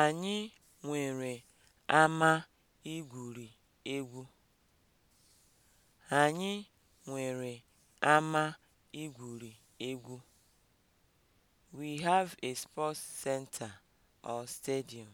Anyị nwere ama igwuri egwu. Anyị nwere ama igwuri egwu. We have a sports center or stadium.